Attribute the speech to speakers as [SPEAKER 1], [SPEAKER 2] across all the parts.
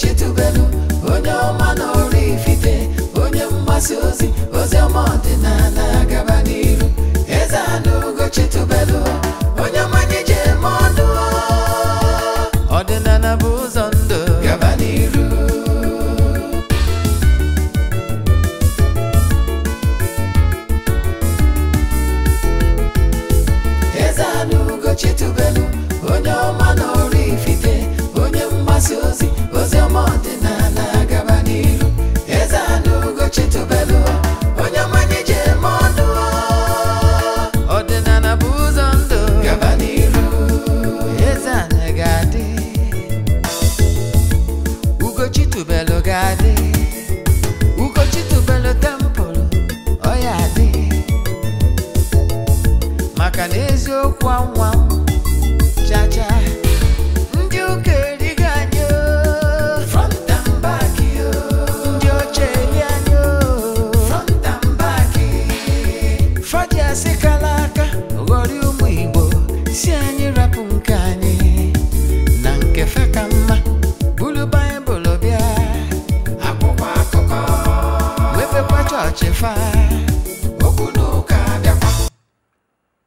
[SPEAKER 1] chitubelu onye ọma na ifite onye mgbasa ozi ozi ọma ọdịnala gaba n'iru eze anụ ugo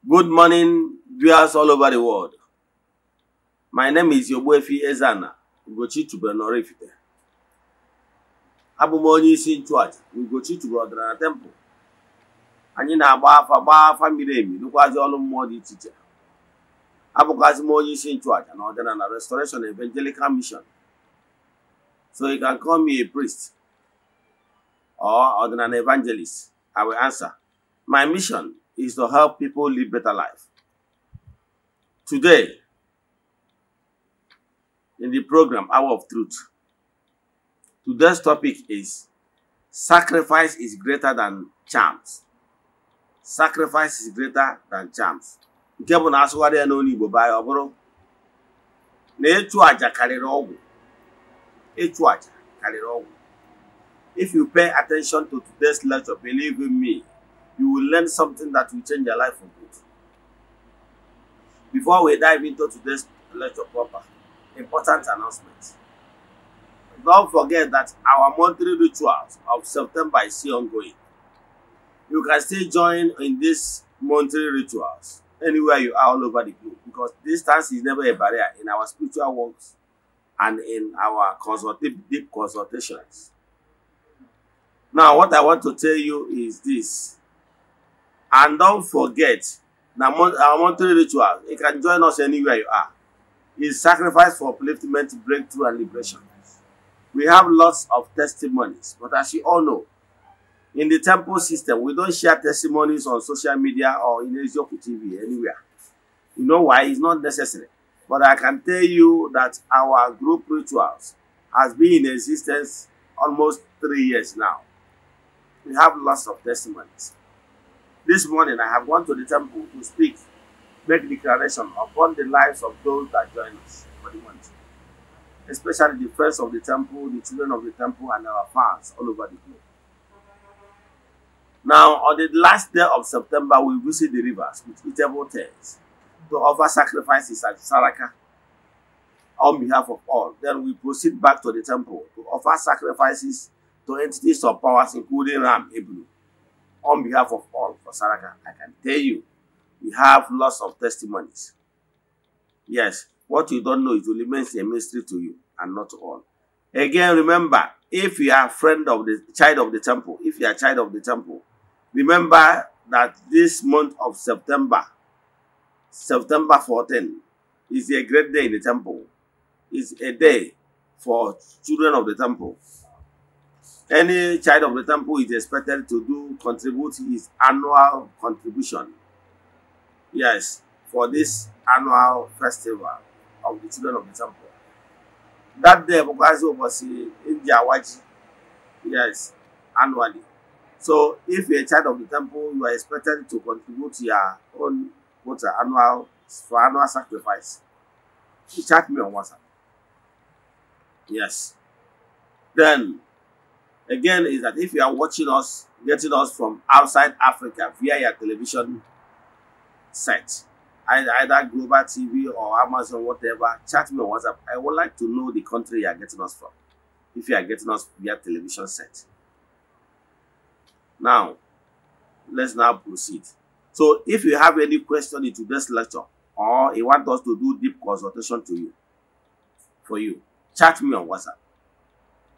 [SPEAKER 2] Good morning, viewers all over the world. My name is Yogbuefi Ezana Ugochi Chubenorifite. abụ m onye isi nchụaja Ugochi Chube Ọdịnala temple anyị na-agba afa gbaa afa nụkwazi ọrụ mmụọ dị iche iche abụkwazi m onye isi nchụaja na ọdịnala Restoration Evangelical Mission so you can call me a priest or on an evangelist? I will answer. My mission is to help people live better life. Today, in the program Hour of Truth, today's topic is sacrifice is greater than charms. Sacrifice is greater than charms. nke na asụgharị ya n'olu Igbo baa ya na ịchụ aja karịrị ọgwụ ịchụ aja karịrị If you pay attention to today's lecture, believe in me, you will learn something that will change your life for good. Before we dive into today's lecture proper, important announcement. Don't forget that our monthly rituals of September is still ongoing. You can still join in these monthly rituals anywhere you are all over the globe because distance is never a barrier in our spiritual walks and in our consultative, deep consultations now what i want to tell you is this and don't forget our monthly ritual you can join us anywhere you are is sacrifice for upliftment breakthrough and liberation we have lots of testimonies but as you all know in the temple system we don't share testimonies on social media or in Ezeoku TV anywhere you know why it's not necessary but i can tell you that our group rituals has been in existence almost three years now We have lots of testimonies. This morning I have gone to the temple to speak, make declaration upon the lives of those that join us for the month, especially the first of the temple, the children of the temple, and our fans all over the globe. Now, on the last day of September, we visit the rivers with eatable tents to offer sacrifices at Saraka on behalf of all. Then we proceed back to the temple to offer sacrifices to entities of powers, including Ram Ebru. On behalf of all for Saraka, I can tell you, we have lots of testimonies. Yes, what you don't know, it will remain a mystery to you and not to all. Again, remember, if you are a friend of the child of the temple, if you are a child of the temple, remember that this month of September, September 14, is a great day in the temple. It's a day for children of the temple. Any child of the temple is expected to do contribute his annual contribution. Yes, for this annual festival of the children of the temple. That day, Bukazi was in Jawaji. Yes, annually. So, if you're a child of the temple, you are expected to contribute your own quota uh, annual for annual sacrifice. You chat me on WhatsApp. Yes. Then again is that if you are watching us, getting us from outside Africa via your television set, either Global TV or Amazon, whatever, chat me on WhatsApp. I would like to know the country you are getting us from, if you are getting us via television set. Now, let's now proceed. So if you have any question in today's lecture, or you want us to do deep consultation to you, for you, chat me on WhatsApp.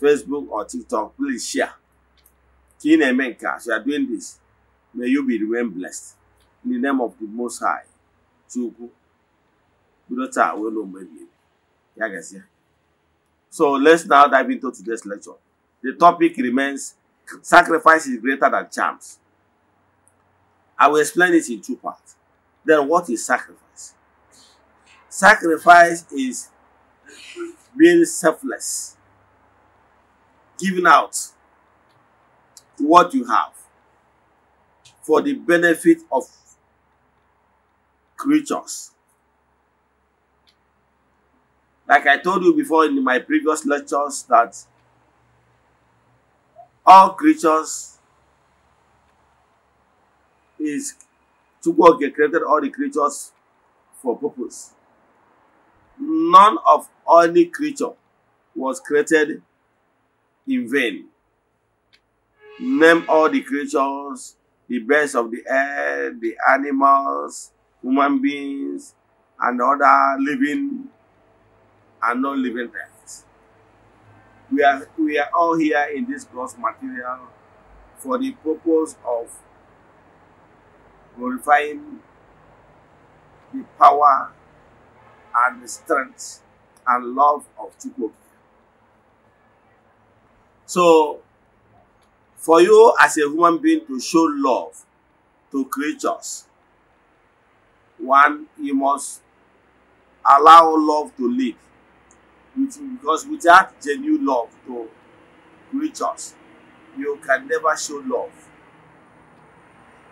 [SPEAKER 2] Facebook or TikTok, please share. King Emenka, as you are doing this, may you be remain blessed. In the name of the Most High, Chuku, Budota, we know maybe. Yagasi. So let's now dive into today's lecture. The topic remains sacrifice is greater than charms. I will explain it in two parts. Then, what is sacrifice? Sacrifice is being selfless giving out what you have for the benefit of creatures. Like I told you before in my previous lectures that all creatures is to work created all the creatures for purpose. None of any creature was created in vain. Name all the creatures, the birds of the air, the animals, human beings, and other living and non-living things. We are, we are all here in this gross material for the purpose of glorifying the power and the strength and love of Chukwu. So, for you as a human being to show love to creatures, one, you must allow love to live. Because without genuine love to creatures, you can never show love.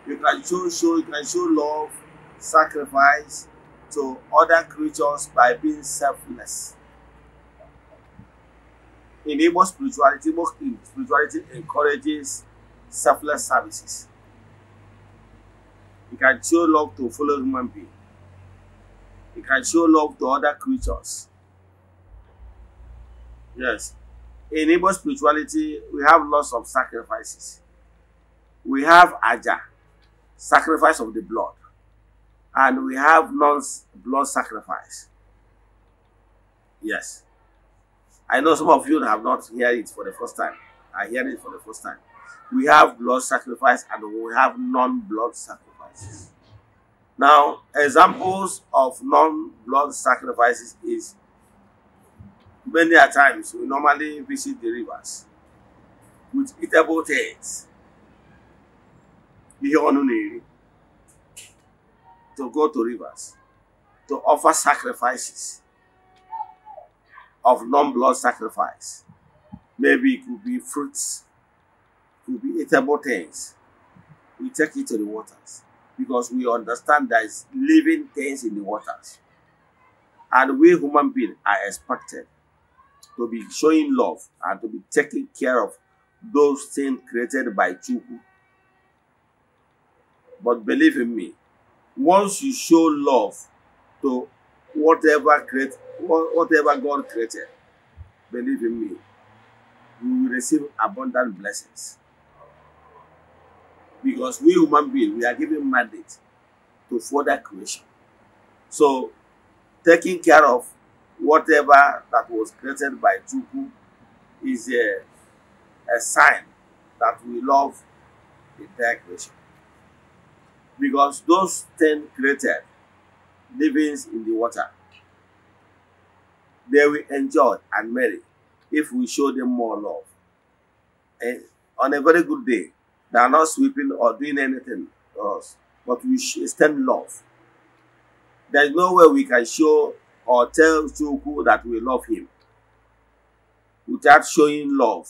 [SPEAKER 2] You can show, show, you can show love, sacrifice to other creatures by being selfless enable spirituality, more spirituality encourages selfless services. It can show love to fellow human being. It can show love to other creatures. Yes. Enable spirituality, we have lots of sacrifices. We have aja, sacrifice of the blood. And we have non-blood sacrifice. Yes. I know some of you have not heard it for the first time. I hear it for the first time. We have blood sacrifice and we have non-blood sacrifices. Now, examples of non-blood sacrifices is many a times we normally visit the rivers with eatable things. to go to rivers to offer sacrifices of non-blood sacrifice. Maybe it could be fruits, it could be eatable things. We take it to the waters because we understand there is living things in the waters. And we human beings are expected to be showing love and to be taking care of those things created by Chukwu. But believe in me, once you show love to whatever create whatever God created, believe in me, you will receive abundant blessings. Because we human beings, we are given mandate to further creation. So, taking care of whatever that was created by Chukwu is a, a sign that we love the entire creation. Because those ten created livings in the water they will enjoy and marry if we show them more love. And eh, on a very good day, they are not sweeping or doing anything to us, but we extend love. There is no way we can show or tell Chuku that we love him without showing love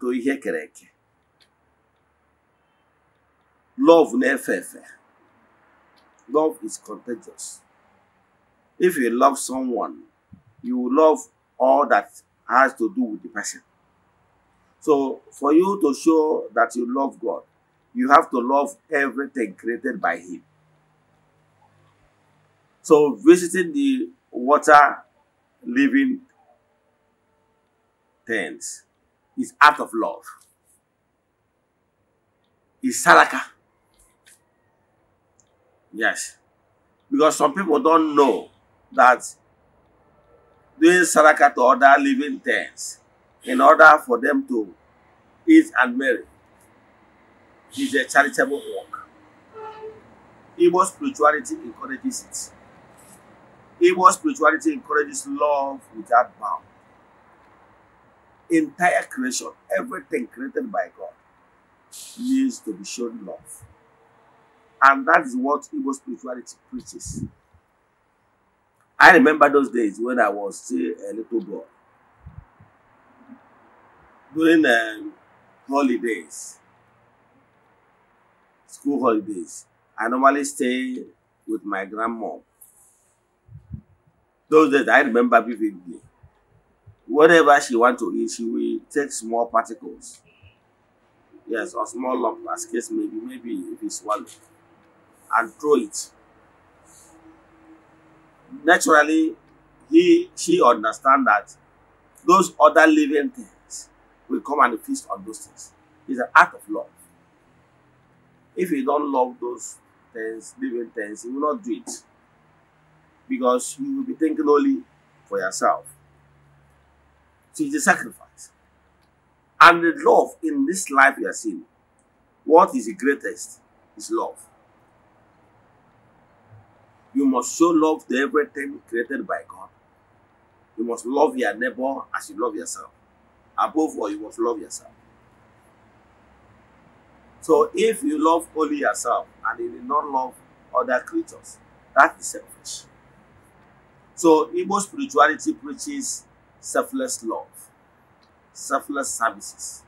[SPEAKER 2] to Ihekereke. Love nefefe. Love is contagious. If you love someone, you will love all that has to do with the person. So for you to show that you love God, you have to love everything created by Him. So visiting the water living tents is act of love. Is Salaka? Yes. Because some people don't know that doing Saraka to other living things in order for them to eat and marry is a charitable work. Igbo spirituality encourages it. Igbo spirituality encourages love without bound. Entire creation, everything created by God, needs to be shown love. And that is what Igbo spirituality preaches. I remember those days when I was still a little boy. During um, holidays, school holidays, I normally stay with my grandma. Those days, I remember vividly. Whatever she want to eat, she will take small particles. Yes, or small lump, as case maybe, maybe if it's one, and throw it naturally he she understand that those other living things will come and feast on those things. It's an act of love. If you don't love those things, living things, you will not do it. Because you will be thinking only for yourself. So it's a sacrifice. And the love in this life you are seeing, what is the greatest is love. You must show love to everything created by God. You must love your neighbor as you love yourself. Above all, you must love yourself. So if you love only yourself and you do not love other creatures, that is selfish. So Igbo spirituality preaches selfless love, selfless services,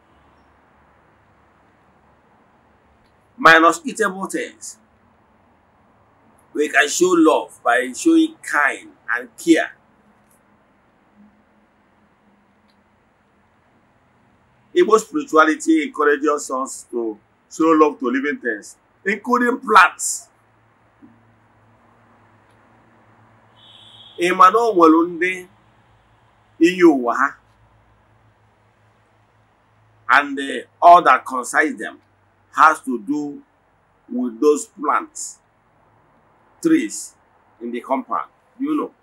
[SPEAKER 2] minus eatable things. We can show love by showing kind and care. Igbo spirituality encourages us to show love to living things, including plants. Ị ma na o nwere ndị iyi ụwa ha and all that concerns them has to do with those plants trees in the compound. Do you know?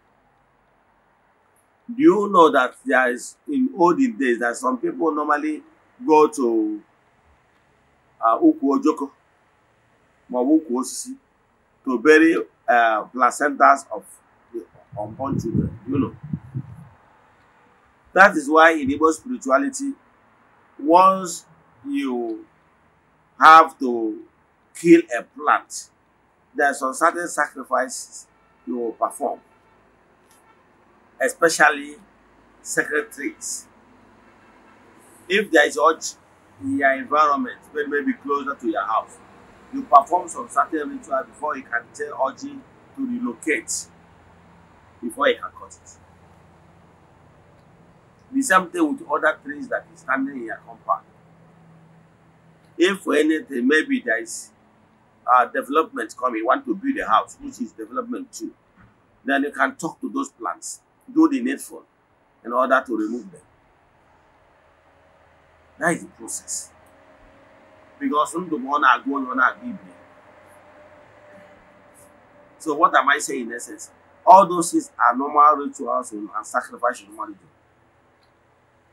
[SPEAKER 2] Do you know that there is, in olden days, that some people normally go to uh, Ukwu Ojoko, Mawuku Osisi, to bury uh, placentas of unborn children, you know. That is why in Igbo spirituality, once you have to kill a plant, there are some certain sacrifices you will perform, especially sacred trees. If there is urge in your environment, maybe may closer to your house, you perform some certain ritual before you can tell urge to relocate, before you can cut it. The same thing with other trees that is standing in your compound. If for anything, maybe there is uh, development coming, want to build a house, which is development too, then you can talk to those plants, do the needful in order to remove them. That is the process. Because from the one I go on I give So what am I saying in essence? All those things are normal rituals and sacrifice you normally do.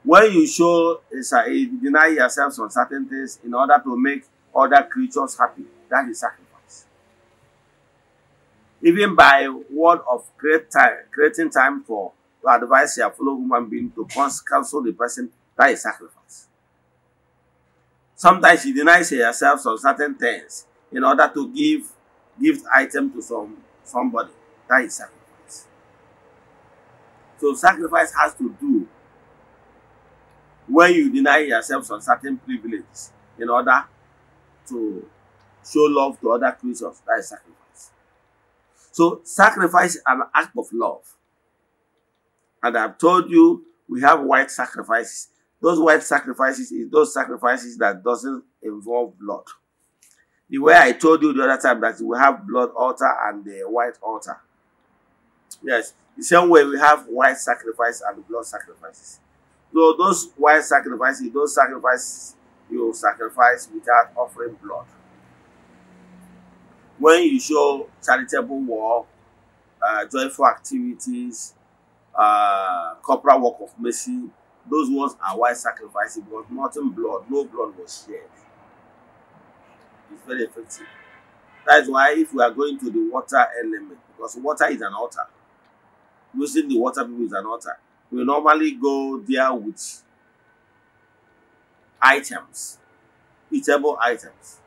[SPEAKER 2] When you show, you deny yourself some certain things in order to make other creatures happy, That's the sacrifice. Even by word of great time, creating time for to advise your fellow human being to counsel the person, that is sacrifice. Sometimes you deny yourself some certain things in order to give gift item to some somebody. That is sacrifice. So sacrifice has to do when you deny yourself some certain privileges in order to show love to other creatures. That is sacrifice. So sacrifice is an act of love. And I've told you we have white sacrifices. Those white sacrifices is those sacrifices that doesn't involve blood. The way I told you the other time that we have blood altar and the white altar. Yes, the same way we have white sacrifice and blood sacrifices. So those white sacrifices, those sacrifices you sacrifice without offering blood. when you show charitable work, uh, joyful activities, uh, corporal work of mercy, those ones are why sacrifice because nothing blood, no blood was shed. It's very effective. That is why if we are going to the water element, because water is an altar. Using the water people is an altar. We normally go there with items, eatable items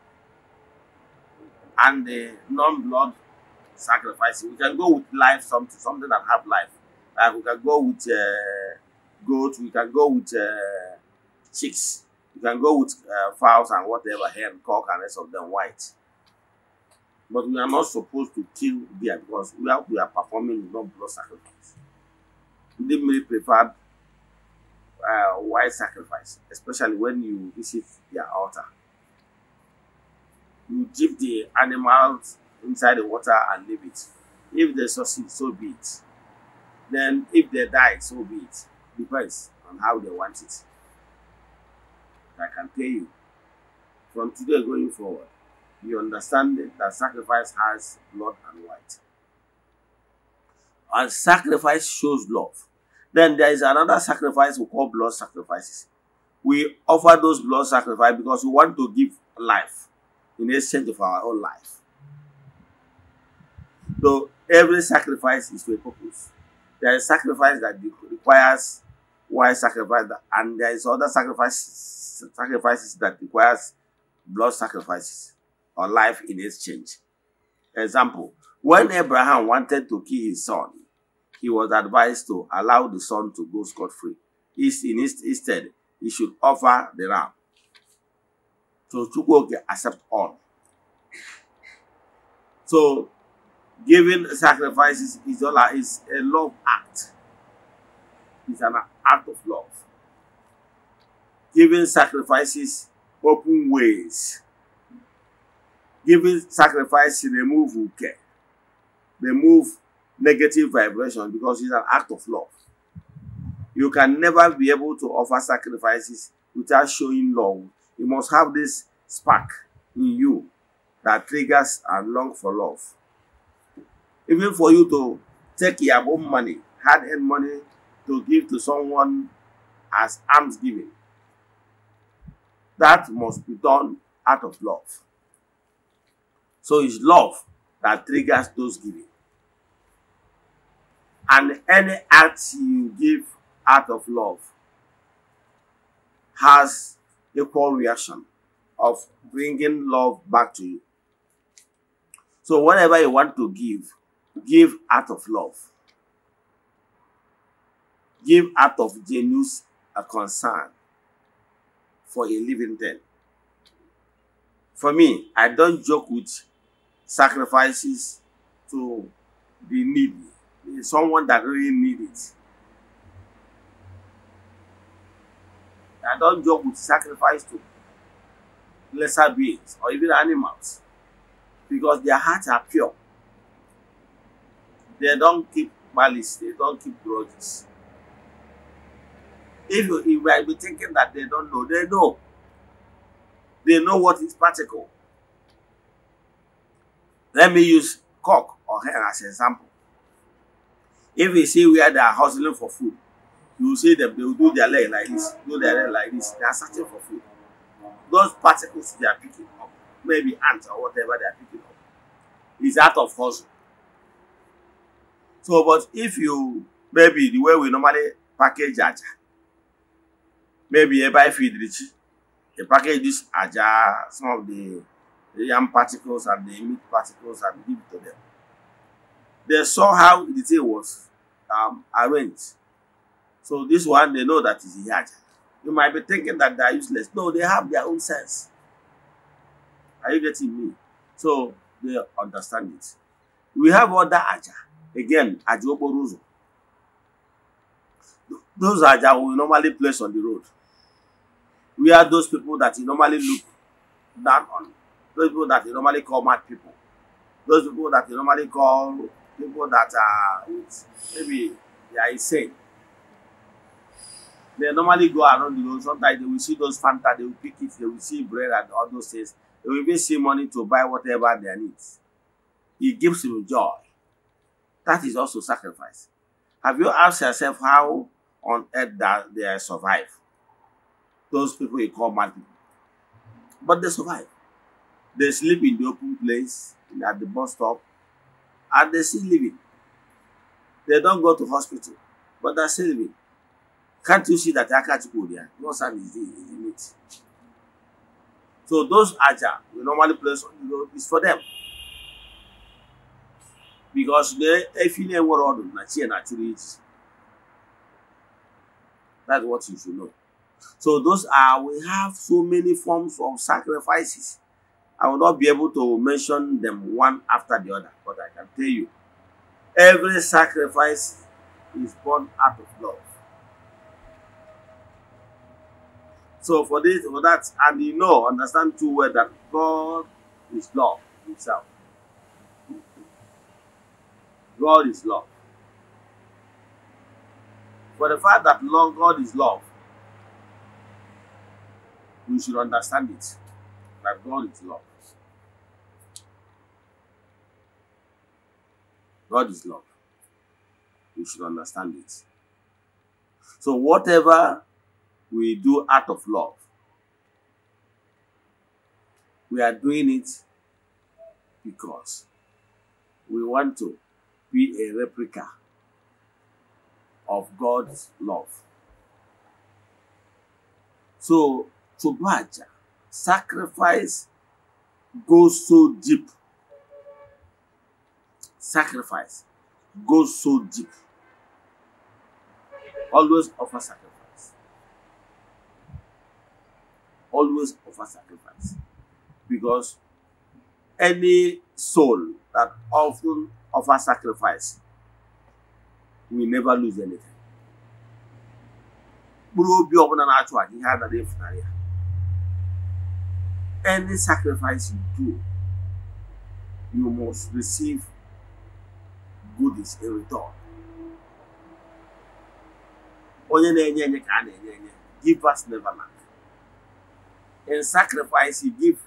[SPEAKER 2] and the non-blood sacrifice. We can go with life something, something that have life. Like we can go with uh, goats, we can go with uh, chicks, We can go with uh, fowls and whatever, hen, cock, and rest of them white. But we are not supposed to kill deer because we are, we are performing non blood sacrifice. They may prefer uh, white sacrifice, especially when you visit their altar. you give the animals inside the water and leave it. If they succeed, so be it. Then if they die, so be it. Depends on how they want it. I can tell you, from today going forward, you understand that sacrifice has blood and white. And sacrifice shows love. Then there is another sacrifice we call blood sacrifices. We offer those blood sacrifices because we want to give life in exchange of our own life. So every sacrifice is for a purpose. There is sacrifice that requires wise sacrifice, and there is other sacrifices, sacrifices that requires blood sacrifices or life in exchange. Example, when Abraham wanted to kill his son, he was advised to allow the son to go scot-free. Instead, he should offer the ram. So Chukwuoke accept all. So giving sacrifices is all is a love act. It's an act of love. Giving sacrifices open ways. Giving sacrifice remove care. Remove negative vibration because it's an act of love. You can never be able to offer sacrifices without showing love You must have this spark in you that triggers and long for love. Even for you to take your own money, hard-earned money, to give to someone as alms giving. That must be done out of love. So it's love that triggers those giving. And any act you give out of love has equal reaction of bringing love back to you. So, whatever you want to give, give out of love. Give out of genuine concern for a living thing. For me, I don't joke with sacrifices to be needy. Someone that really needs it. I don't joke with sacrifice to lesser beings or even animals because their hearts are pure. They don't keep malice, they don't keep grudges. If you, you might be thinking that they don't know, they know. They know what is particle. Let me use cock or hen as an example. If we see where they are hustling for food, you see them, they will do their leg like this, do their leg like this. They are searching for food. Those particles they are picking up, maybe ants or whatever they are picking up, is out of hustle. So, but if you, maybe the way we normally package aja, maybe you buy feed rich, you package this aja, some of the yam particles and the meat particles and give it to them. They saw how the thing was um, arranged. So this one, they know that is Iyaja. You might be thinking that they are useless. No, they have their own sense. Are you getting me? So they understand it. We have other Aja. Again, Ajoboruzo. Those Aja we normally place on the road. We are those people that you normally look down on. Those people that you normally call mad people. Those people that you normally call people that are maybe they are insane. They normally go around the road. Sometimes they will see those Fanta, they will pick it, they will see bread and all those things. They will even see money to buy whatever they need. It gives you joy. That is also sacrifice. Have you asked yourself how on earth that they survive? Those people you call mad people. But they survive. They sleep in the open place, at the bus stop, and they still living. They don't go to hospital, but they're still living. Can't you see that Akachiko there? No sand is the, is the So those aja we normally place on the road is for them. Because the if world, never order Nachi naturally is. That's what you should know. So those are we have so many forms of sacrifices. I will not be able to mention them one after the other, but I can tell you every sacrifice is born out of love. So for this, for that, and you know, understand too well that God is love Himself. God is love. For the fact that love, God is love, we should understand it that God is love. God is love. We should understand it. So whatever we do out of love. We are doing it because we want to be a replica of God's love. So, Tubaja, sacrifice goes so deep. Sacrifice goes so deep. Always offer sacrifice. always offer sacrifice because any soul that often offers sacrifice will never lose anything. mkpụrụ obi ọbụla na-achụ aja ihe anaghị efunarị ya any sacrifice you do you must receive goodies in return onye na givers never lack In sacrifice, you give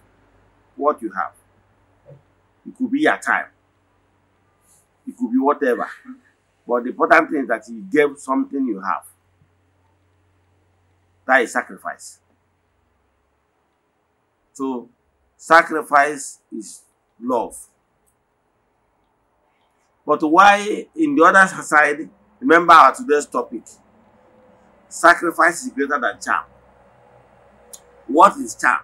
[SPEAKER 2] what you have. It could be your time. It could be whatever. But the important thing is that you gave something you have. That is sacrifice. So, sacrifice is love. But why, in the other side, remember our today's topic sacrifice is greater than charm. What is charm?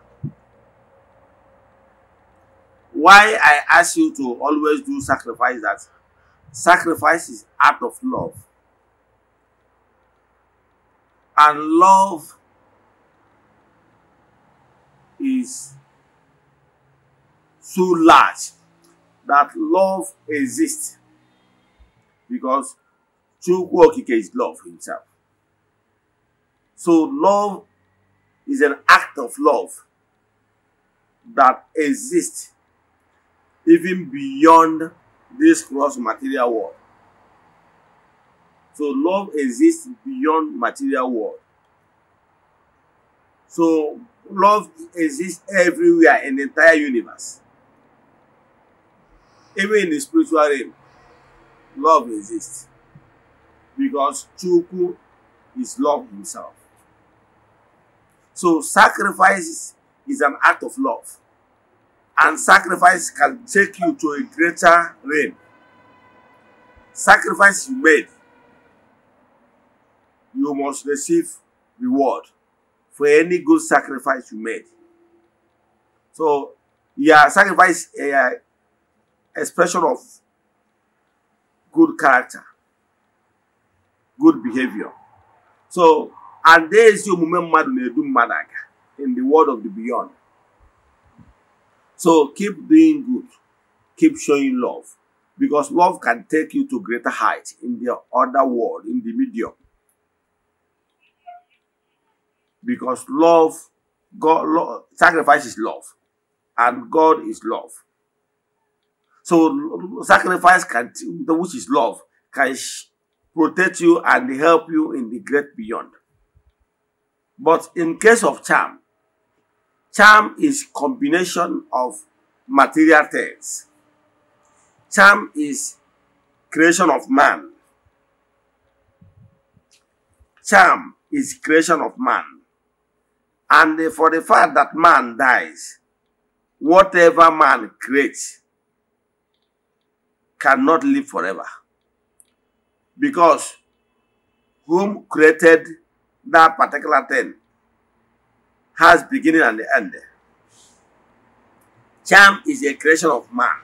[SPEAKER 2] Why I ask you to always do sacrifice that sacrifice is out of love. And love is so large that love exists because Chukwu Okike is love himself. So love is an act of love that exists even beyond this gross material world. So love exists beyond material world. So love exists everywhere in the entire universe. Even in the spiritual realm, love exists. Because Chukwu is love himself. So sacrifice is an act of love. And sacrifice can take you to a greater realm. Sacrifice you made, you must receive reward for any good sacrifice you made. So, yeah, sacrifice a eh, eh, expression of good character, good behavior. So, and there is your mmadụ in the world of the beyond so keep doing good keep showing love because love can take you to greater heights in the other world in the medium because love god sacrifices sacrifice is love and god is love so sacrifice can which is love can protect you and help you in the great beyond but in case of charm, charm is combination of material things. Charm is creation of man. Charm is creation of man. And for the fact that man dies, whatever man creates cannot live forever. Because whom created that particular thing has beginning and the end. Charm is a creation of man.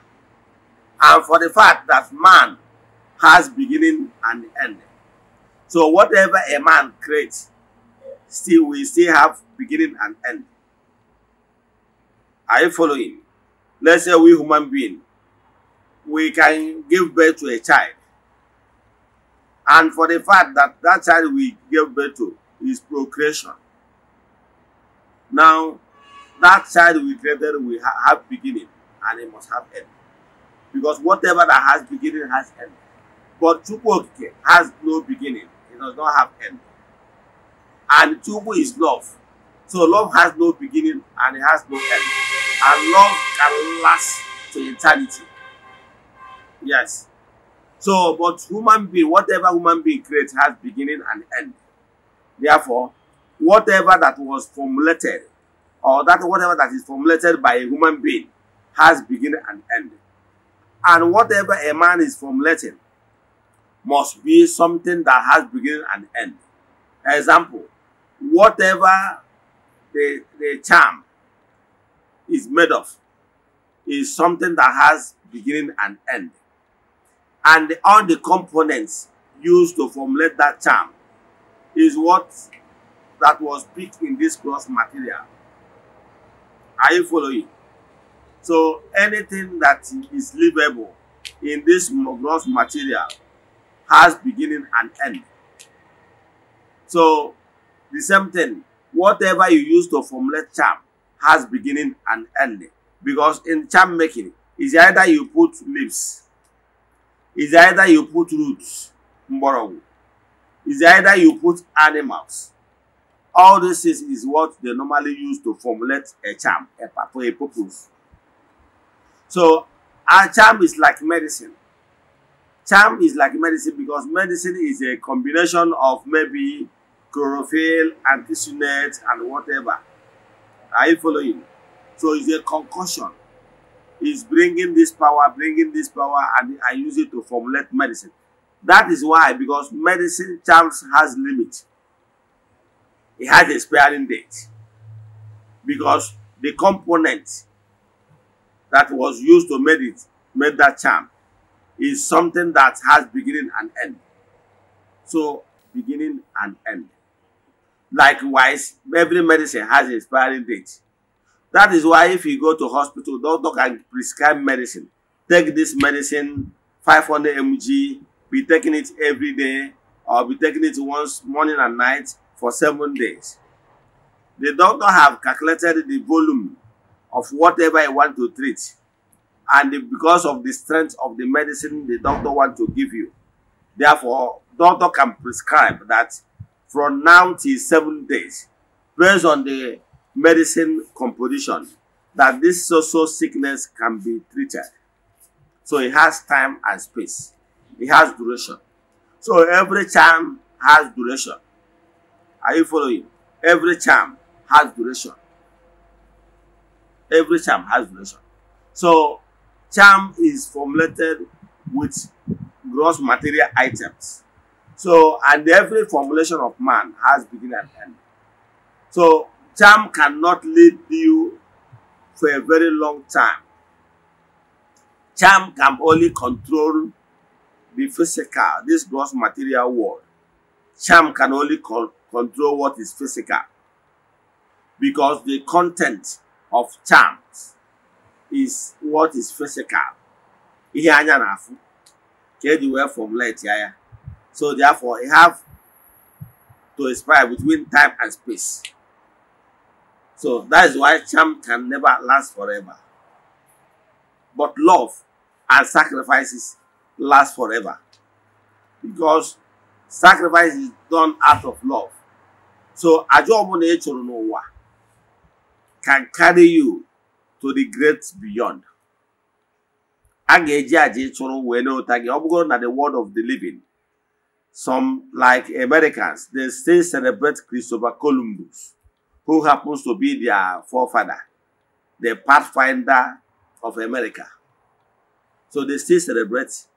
[SPEAKER 2] And for the fact that man has beginning and end. So whatever a man creates, still we still have beginning and end. Are you following? Let's say we human being, we can give birth to a child. And for the fact that that child we give birth to is procreation. Now, that child we created will have beginning and it must have end. Because whatever that has beginning has end. But Chukwokike has no beginning. It does not have end. And Chukwu is love. So love has no beginning and it has no end. And love can last to eternity. Yes. So, but human being, whatever human being creates has beginning and end. Therefore, whatever that was formulated, or that whatever that is formulated by a human being, has beginning and end. And whatever a man is formulating must be something that has beginning and end. Example, whatever the, the charm is made of is something that has beginning and end. And all the components used to formulate that charm is what that was picked in this cross material. Are you following? So anything that is livable in this gross material has beginning and end. So the same thing, whatever you use to formulate charm has beginning and end. Because in charm making, it's either you put leaves, it's either you put roots, mborogu, is either you put animals. All this is, is what they normally use to formulate a charm, a, for a purpose. So, a charm is like medicine. Charm is like medicine because medicine is a combination of maybe chlorophyll, antisunate, and whatever. Are you following? So it's a concussion. It's bringing this power, bringing this power, and I use it to formulate medicine. That is why, because medicine charms has limit. It has expiring date. Because the component that was used to make it, make that charm, is something that has beginning and end. So, beginning and end. Likewise, every medicine has expiring date. That is why if you go to hospital, doctor can prescribe medicine. Take this medicine, 500 mg be taking it every day or be taking it once morning and night for seven days. The doctor have calculated the volume of whatever I want to treat and because of the strength of the medicine the doctor want to give you. Therefore, doctor can prescribe that from now till seven days based on the medicine composition that this social sickness can be treated. So it has time and space. It has duration. So every charm has duration. Are you following? Every charm has duration. Every charm has duration. So charm is formulated with gross material items. So, and every formulation of man has beginning and end. So, charm cannot lead you for a very long time. Charm can only control be physical, this gross material world. Charm can only con control what is physical because the content of charms is what is physical. anya na So therefore, you have to expire between time and space. So that is why charm can never last forever. But love and sacrifices last forever because sacrifice is done out of love so àjọ ọbụla ị chụrụ n'ụwa can carry you to the great beyond a ga-eji àjà ịchụrụ wee n'ụta gị ọ bụgoro na the world of the living some like Americans they still celebrate Christopher Columbus who happens to be their forefather the pathfinder of America so they still celebrate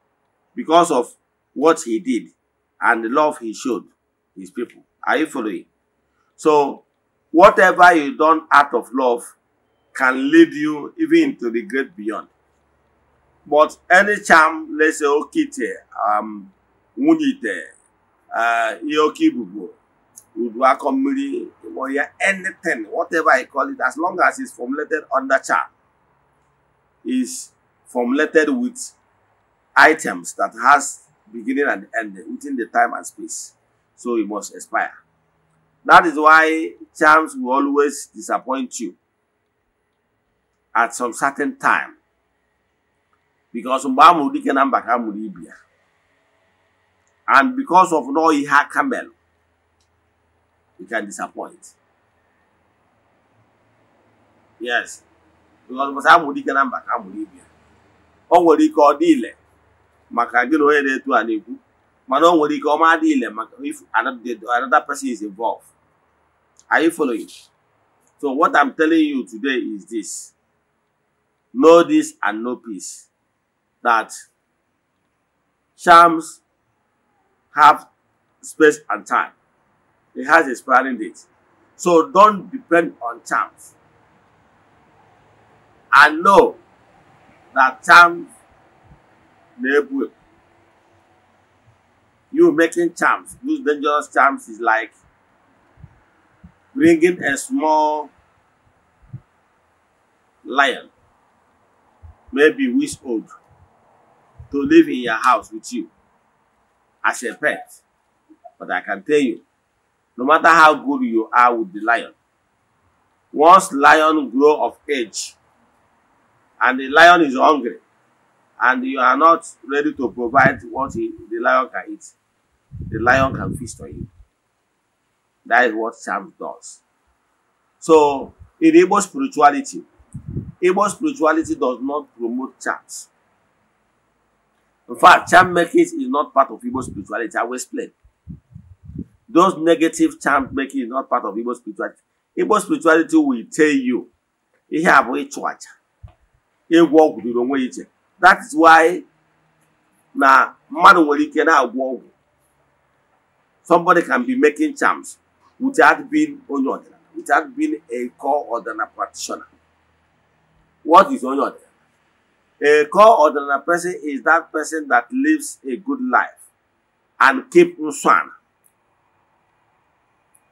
[SPEAKER 2] because of what he did and the love he showed his people. Are you following? So, whatever you done out of love can lead you even to the great beyond. But any charm, let's say, okite, um, wunite, uh, yokibubu, udwakomiri, anything, whatever I call it, as long as it's formulated under charm, is formulated with items that has beginning and end within the time and space. So it must expire. That is why charms will always disappoint you at some certain time. Because and because of no Iha Camel, it can disappoint. Yes. Because Musa Mudi Kanamba Kamulibia. Or what he called dealer maka gị na onye na-eto a na-ekwu mana o nwere ike ọma adị ile maka if another person is involved are you following so what i'm telling you today is this know this and know peace that charms have space and time it has expiring date so don't depend on charms and know that charms na you making charms those dangerous charms is like bringing a small lion maybe weeks old to live in your house with you as a pet but i can tell you no matter how good you are with the lion once lion grow of age and the lion is hungry and you are not ready to provide what he, the lion can eat, the lion can feast on you. That is what charm does. So, in Igbo spirituality, Igbo spirituality does not promote charms. In fact, charm making is not part of Igbo spirituality. I will explain. Those negative charm making is not part of Igbo spirituality. Igbo spirituality will tell you, "You have abụghị chụ You walk with the wrong iche that is why na mmadụ nwere ike na-agwọ ọgwụ somebody can be making charms without being onye ọdịnala without being a core ọdịnala practitioner what is onye ọdịnala a core ọdịnala person is that person that lives a good life and keep nsọ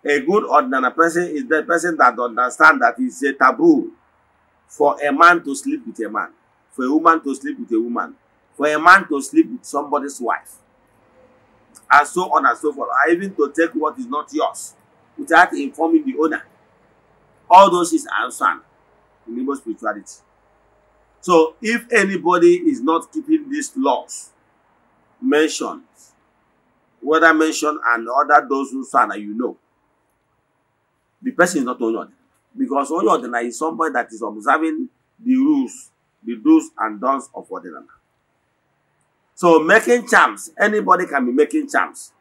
[SPEAKER 2] a good ordinary person is the person that understand that it's a taboo for a man to sleep with a man for a woman to sleep with a woman, for a man to sleep with somebody's wife, and so on and so forth, or even to take what is not yours without informing the owner. All those is are in Igbo spirituality. So if anybody is not keeping these laws mentioned, whether mentioned and other those who stand you know, the person is not Onyodina. Because Onyodina is somebody that is observing the rules the do's and don'ts of Odinama. So making charms, anybody can be making charms.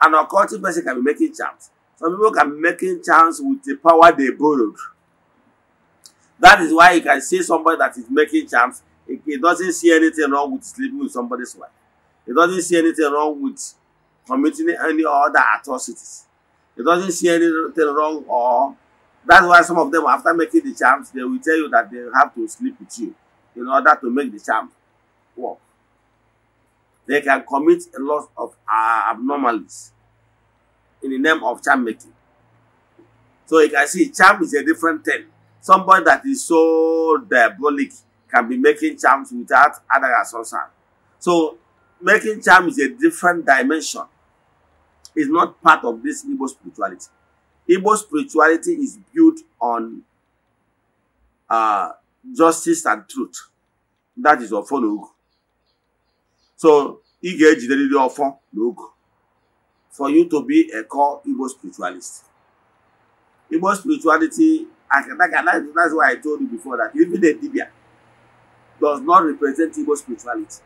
[SPEAKER 2] An occultic person can be making charms. Some people can be making charms with the power they borrowed. That is why you can see somebody that is making charms. he doesn't see anything wrong with sleeping with somebody's wife. He doesn't see anything wrong with committing any other atrocities. He doesn't see anything wrong or That's why some of them, after making the charms, they will tell you that they have to sleep with you in order to make the charm work. They can commit a lot of uh, abnormalities in the name of charm making. So you can see charm is a different thing. Somebody that is so diabolic can be making charms without other association. So making charm is a different dimension. It's not part of this Igbo spirituality. Igbo spirituality is built on uh, justice and truth. That is ọfọ na So ị ga-ejiderịrị ọfọ na ogu for you to be a core Igbo spiritualist. Igbo spirituality, that's why I told you before that even a Dibia does not represent Igbo spirituality.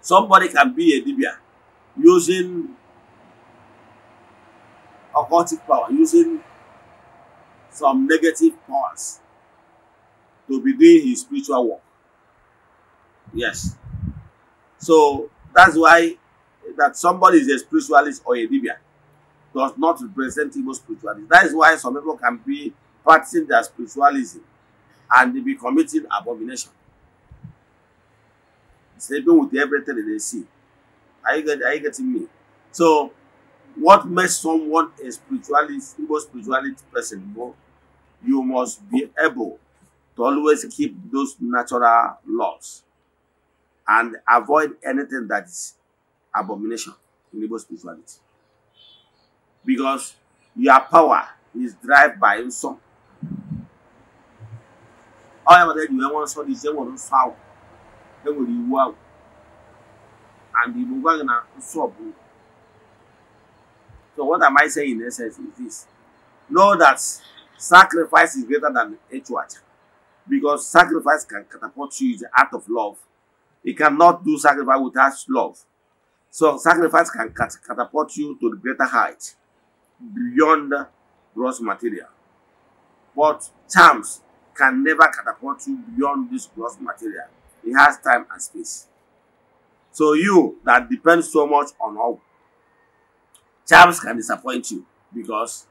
[SPEAKER 2] Somebody can be a Dibia using occultic power using some negative powers to begin his spiritual work. Yes. So that's why that somebody is a spiritualist or a Libyan does not represent Igbo spirituality. That is why some people can be practicing their spiritualism and they be committing abomination. Sleeping with everything that they see. Are you, get, are you getting me? So what makes someone a spirituality, evil spirituality person more, you must be able to always keep those natural laws and avoid anything that is abomination in evil spirituality. Because your power is driven by some. However, then you want to say, one foul, then will you wow. And the Mugagana, so So what am I saying in essence is this. Know that sacrifice is greater than HWAT. Because sacrifice can catapult you in the art of love. You cannot do sacrifice without love. So sacrifice can cat catapult you to the greater height beyond gross material. But charms can never catapult you beyond this gross material. It has time and space. So you that depends so much on how Charms can disappoint you because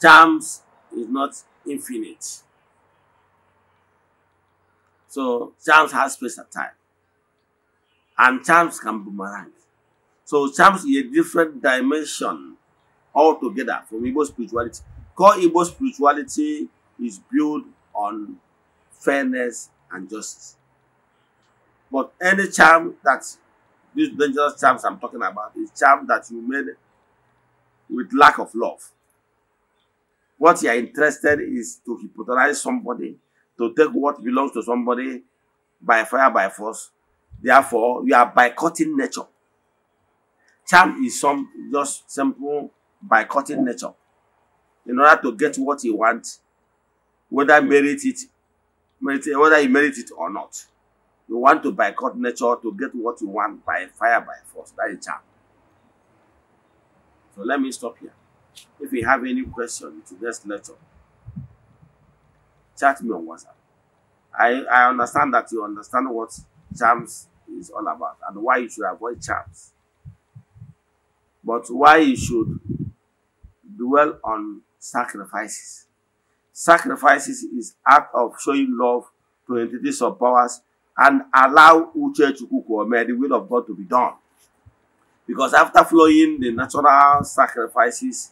[SPEAKER 2] charms is not infinite. So charms has space and time. And charms can boomerang. So charms is a different dimension altogether from Igbo spirituality. Core Igbo spirituality is built on fairness and justice. But any charm that these dangerous charms I'm talking about is charm that you made with lack of love. What you are interested is to hypnotize somebody, to take what belongs to somebody by fire, by force. Therefore, you are boycotting nature. Charm is some just simple boycotting nature in order to get what you want, whether merit it, merit, whether you merit it or not. You want to boycott nature to get what you want by fire, by force. That is charm. So let me stop here. If you have any question to this lecture, chat me on WhatsApp. I, I understand that you understand what charms is all about and why you should avoid charms. But why you should dwell on sacrifices. Sacrifices is act of showing love to entities of powers and allow Uche Chukwu Kwame, the will of God to be done. Because after flowing the natural sacrifices,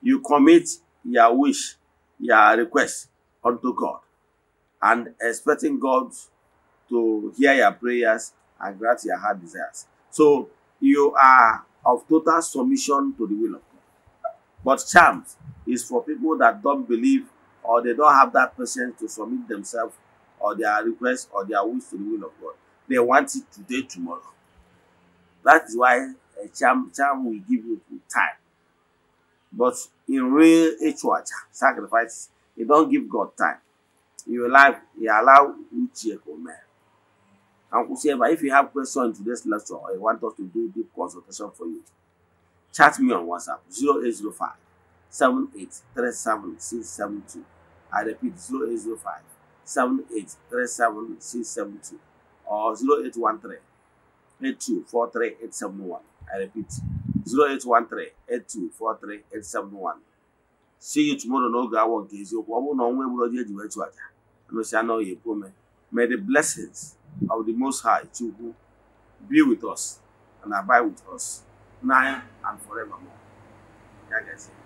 [SPEAKER 2] you commit your wish, your request unto God, and expecting God to hear your prayers and grant your heart desires. So you are of total submission to the will of God. But charms is for people that don't believe or they don't have that patience to submit themselves or their request or their wish to the will of God. They want it today, tomorrow. That is why Eh, a charm, charm will give you time. But in real HWH sacrifice, you don't give God time. You allow, you allow each Uchieko man. Uncle Sheba, if you have questions to this lecture or you want us to do deep consultation for you, chat me on WhatsApp 0805 7837672. I repeat 0805 7837672 or 0813 824381. I repeat, 0813 8243 871. See you tomorrow n'oge awa nke eziokwu ọ bụrụ na ọnwa egburu ọjọ You wee chụ aja emesịa na ọya ekwu ome May the blessings of the Most High Chukwu be with us and abide with us now and forevermore.
[SPEAKER 1] Ya you.